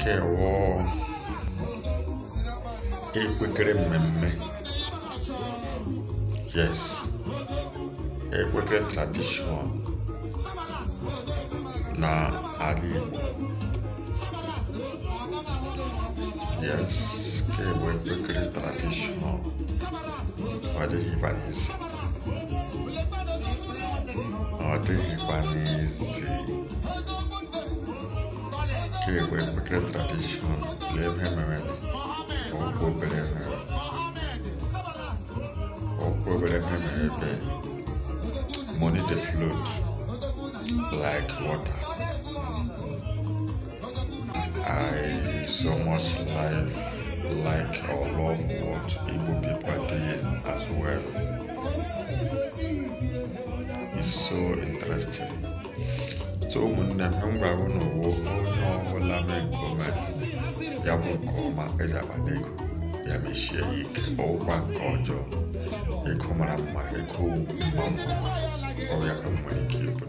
Kè wò i wè kre mèmè. Yes. E wè kre tradisyon. Na a li wò. Yes. Kè wè kre tradisyon. Wè di vè nè zi. Wè di vè nè zi. Nigeria were great tradition, leave him already. Oh, go blame him. Oh, go blame him already. Money the flood like water. I so much life like or love what Igbo people are doing as well. It's so interesting. So, when I'm hungry, I unaola mekome ya bụ nke ọma ejaba n'ego ya mechie ya ike ọwụkwa nke ọjọọ ego mara mma ego mma ọya nwere ike ịbụ